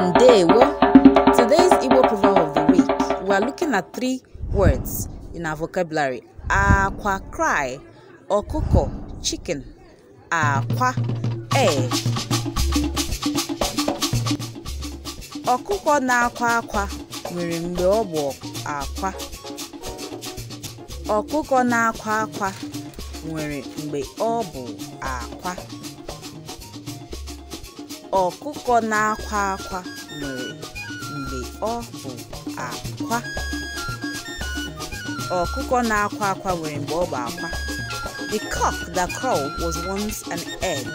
Ndewo! Today's Igbo proverb of the week, we are looking at three words in our vocabulary. Akwa cry, ọkụkọ chicken, akwa egg. Ọkụkọ na-akwa akwa nwere mgbe ọ bụ akwa. Ọkụkọ na-akwa akwa nwere mgbe ọ bụ akwa. ọkụkọ na-akwa akwa nwere mgbe ọ bụ akwa ọkụkọ na-akwa akwa nwere mgbe ọ bụ akwa the cock that crow was once an egg